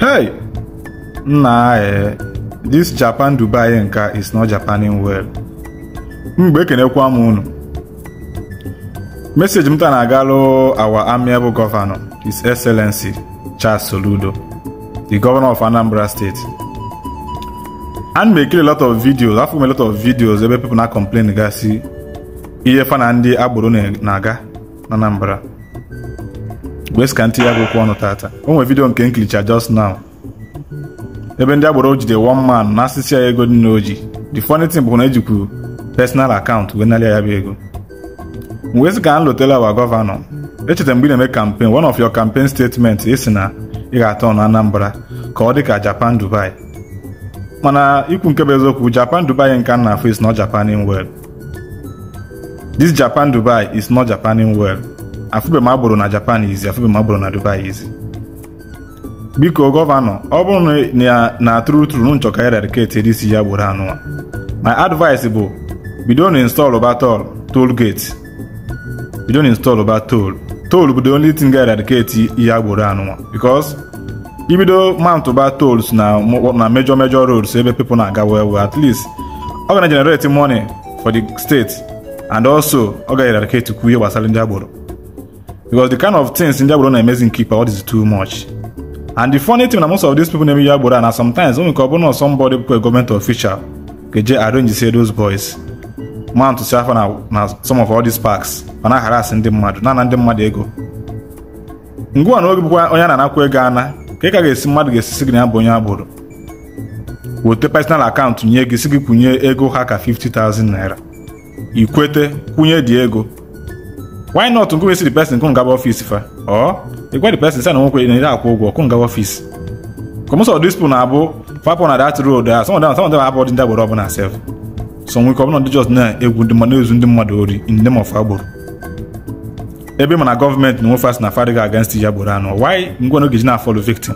Hey! Nna eh, this Japan Dubai nka is not Japaning well. Mgbe ekenekwa m unu. message m ta na-agalụ our amiable governor, His Excellency Charles Soludo, the governor of Anambra State. And mekiri a lot of videos, afọ m lot of videos ebe people na complain gasi ihe fa na ndị agboro na-aga na Anambra. wes ka ntinye akwụkwọ ọnụ tata o nwere vidio nke nklicha just now ebe ndị agboro ojide one man na asịsị ya ego dị na oji the funny thing bụ na ejikwu personal akaụntụ wee narịa ya bụ ego wes ka m lotela wa gọvanọ echetara mgbe ị na-eme campaign one of your campaign statement sị na ị ga-atọ na Anambra ka ọ dị ka Japan Dubai mana ikwu nke bụ eziokwu Japan Dubai nke na afọ is not Japan in well this Japan Dubai is not Japan in well afụbe m agboro na japan izi afụbe m agboro na dubai izi biko gọvanọ ọ bụrụ na na tru tru nchọ ka eradicate edisi ya gboro anụwa my advice bụ bido na install batol toll gate bido na install ba toll toll bụ the only thing ga eradicate ya gboro anụwa because ibido mount ba tolls na na major major roads ebe people na-aga well well at least ọ ga na generate money for the state and also ọ ga eradicate kwu ihe gbasara ndị agboro because the kind of things ndị agboro na amazing nke ikpe all is too much and the funny thing na most of these people na-eme ya agboro na sometimes o nwere ka ọ bụrụ na somebody a government official ga-eje arrange say those boys man to say na some of all these parks ọ na-aharas ndị mmadụ na na ndị mmadụ ego ngwa na oge bụkwa onye na-anakwa ego ana ka ị ka ga-esi mmadụ ga-esi si gị na ya bụ onye agboro wete personal account nye gị si gị kwụnye ego ha ka 50,000 naira ikwete kwụnye dị ego why not go see the person come gaba office fa or you go the person say na nwoke na ira akwụ ụgwọ come gaba office come so this people na abụ fapụ na that road there uh, some of them some of them ọbụna self some we come not just na egwu ndị mmadụ ezu ndị mmadụ ori in the name of ebe mana gọọmenti na nwe fast na fadiga against ya gboro anọ why ngwa na ogeji na victim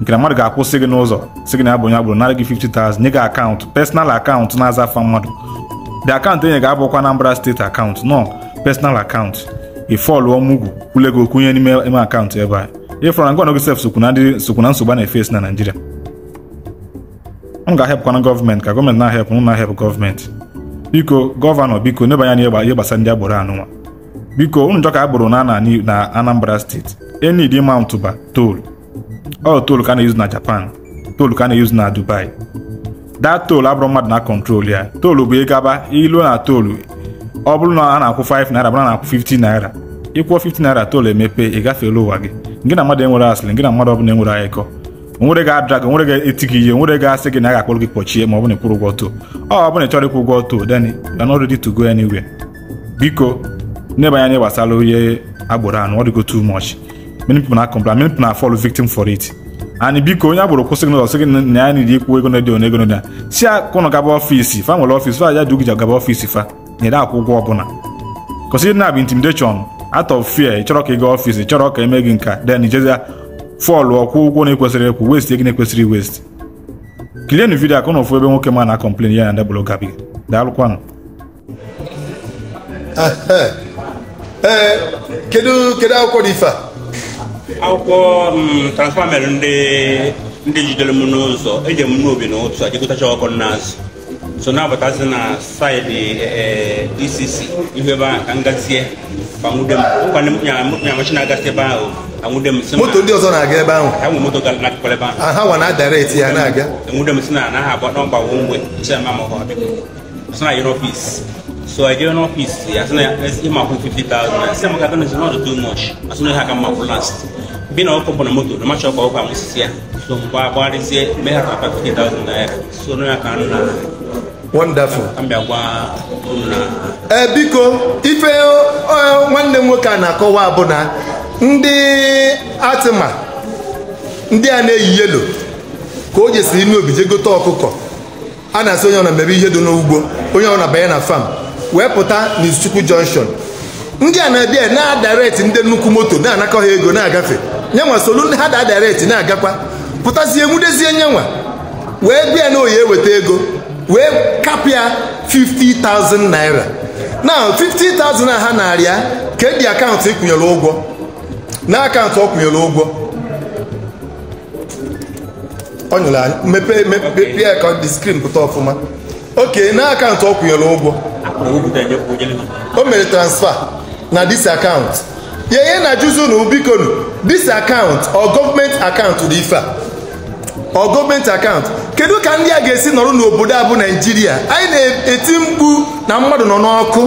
nke na mmadụ ga-akwụsị gị n'ụzọ sị gị na abụ onye gị 50,000 na-aza mmadụ the akaụntụ enye ga-abụkwa akaụntụ personal akaụntụ ị fọlụ ọmụgwụ kwule nye n'ime ime akaụntụ ebe a ịfọrọ na gọọmenti sef sokwu nsogbu a na-efesi na Naịjirịa m ga-ahepụkwana gọọmenti ka gọọmenti na-ahepụ m na-ahepụ gọọmenti biko gọvanọ biko nebanye anya ihe gbasara ndị agboro anụnwa biko ụnụ njọ ka agboro na ana na Anambra steeti enid mountba tol ọ tol ka a na-eyuzu na Japan tol ka a na-eyuzu na Dubai daa tol abụrụ mmadụ na kọntrol ya tol bụ ịgaba ilu na tol ọ bụrụ na a na-akwụ 5 naira bụrụ na na akwụ 15 naira ịkwụọ 15 naira toolu emepe ị gafeela ụwa gị gị na mmadụ enwere asịrị gị na mmadụ ọbụla enwere ayịkọ onwere ga-ada gị onwere ga-eti gị ihe onwere ga-asị gị na a ga-akpọrọ gị kpọchie ma ọ bụrụ na ịkwụrụ ụgwọ too ọ bụrụ na ị chọrọ ịkwụ ụgwọ too then you are not ready to go biko n'ebe anya gbasara onye agbụrụ anụ ọ dịgo tu mọch na agboro kwụsị gị n'ụzọ ya na ikwu a gaba fa nwere fa ya gaba fa nyere akwụkwọ da akwụ ụgwọ ọbụla kwụsị na bụ intimidation out of fear chọrọ ka ị gaa ọfịs chọrọ ka eme gị nka then ijezia fọlụ ọkwụ ụgwọ na-ekwesịrị ekwu west ego na-ekwesịrị west kilienụ vidio ka ụnụ fụ ebe nwoke ma na-akọmplen ya na ndị bụrụ gabi daalụkwanụ eh, eh, kedu kedu akwụkwọ dị ife a akwụkwọ mm, transfa mere ndị jidere m n'ụzọ eje m n'obi n'ụtụ a jekọtacha ọkụ n'azụ so na-abatazi uh, eh, eh, e na saịdị a ihu ebe ahụ ka ngazie nyamachi na-agasị ebe ahụ anwụde m moto ndị ọzọ na-aga ebe ahụ ha nwe moto gara nakụkọrọ ebe ahụ ha nwa na adareti ya na-aga enwude si na na ọgbawo mgbe chema ma ọha biko so na yere so i jere n'ọfis ya sị too much bi na ọkụ bụ na moto na macha ọkụ ọkụ amụsisi ya so mgbe ha ka 50,000 naira so na ya ka wonderful ee eh, biko ife nwanne m nwoke a na-akọwa bụ na ndị atịma ndị a na-eyi yelo ka o jesiri n'obi je gote ọkụkọ a na-asị onye ọna mebe ihe dị n'ugbo onye ọna banye na fam wee pụta n'izuchukwu jọnshọn ndị a na-abịa na-adareti ndị nnukwu moto na-anakọ ha ego na-agafe nyenwa solu ha da adareti na-agakwa pụtazie nwudezie nyenwa wee bịa na oyi weta ego wee kapịa 50,000 naira na 50,000 a ha narịa ka e ji akaụntụ ịkwụnyere e ụgwọ na akaụntụ ọ kwụnyere ụgwọ ọ nyere anyị mepee mepee ka dị skrin pụta ọfụma oke na akaụntụ ọ kwụnyere ụgwọ o mere transfer na dis akaụntụ ya ihe na juzu na ubikonu dis akaụntụ ọ gọọmenti akaụntụ dị ife a ọ gọọmenti akaụntụ kedu ka ndị a ga-esi nọrọ n'obodo a bụ naijiria anyị na-eti mkpu na mmadụ nọ n'ọkụ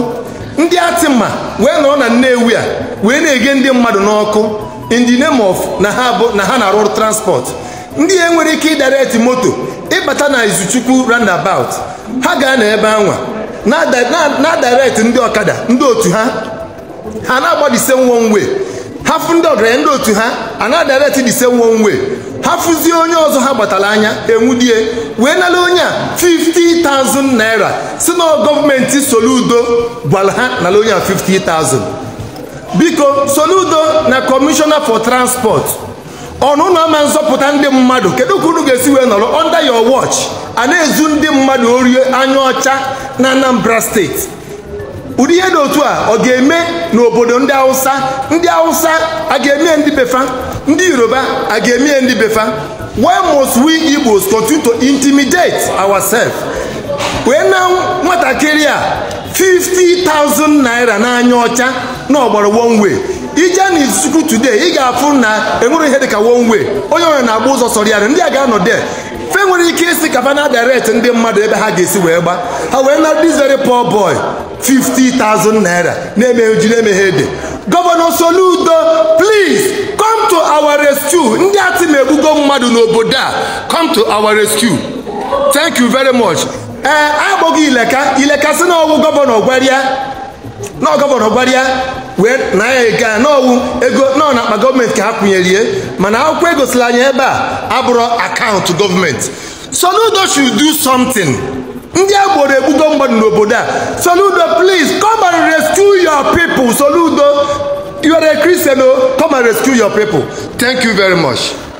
ndị atịma wee nọrọ na nnewi a wee na-ege ndị mmadụ n'ọkụ in the name of na ha bụ na ha na-arụ ọrụ transport ndị a nwere ike ịdareti moto ịbata na izuchukwu roundabout ha gaa n'ebe anwa na-adareti ndị ọkada ndị otu ha ha na-agba the same ndị ọgaranya ndị otu ha a na-adareti the same ha onye ọzọ ha gbatara anya enwudie wee nara onye a 50,000 naira si na gọọmenti soludo gwara ha nara onye a 50,000 biko soludo na kọmishọna for transport ọnụnụ ama nzọpụta ndị mmadụ kedu ka unu ga-esi wee nọrọ under your watch a na-ezu ndị mmadụ orie anya ọcha na Anambra steeti ụdị ihe dị otu a ọ ga-eme n'obodo ndị Hausa ndị Hausa a ga-eme ndị befa ndị yoruba a ga-eme ndị befa why must we igbos continue to intimidate ourselves wee na nwatakịrị a 50,000 naira n'anya ọcha na ọgbara one ije na izuku today ị ga-afụ na enwere ihe dịka one onye onye na-agba ụzọ sọrọ ndị a ga-anọ de fe nwere ike isi ka fa na direct ndị mmadụ ebe ha ga-esi wee gba ha wee na this very poor boy 50,000 naira na-emeghe ji na-emeghe ede gọvanọ Soludo please come to our rescue ndị ati na-egbugo mmadụ n'obodo a come to our rescue thank you very much ee akpọghị ileka ileka si n'ọwụ gọvanọ gwarịa na gọvanọ gwarịa wee na ya n'ọwụ ego nọ na akpa gọọmenti ka ha kwụnyerie mana akwụkwọ egosila anya ebe a abụrụ akaụntụ gọọmenti Soludo should do something ndị agboro egbugo mmadụ n'obodo a Soludo please come and rescue your people Soludo You are a Christian, oh, come and rescue your people. Thank you very much.